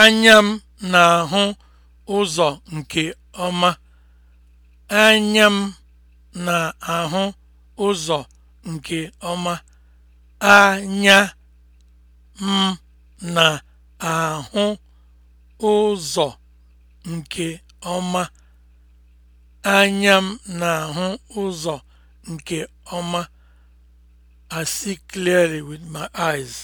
Anya m na-ahụ ụzọ nke ọma. Anya m na-ahụ ụzọ nke ọma. Anya m na-ahụ ụzọ nke ọma. Anya m na-ahụ ụzọ nke ọma. I see clearly with my eyes.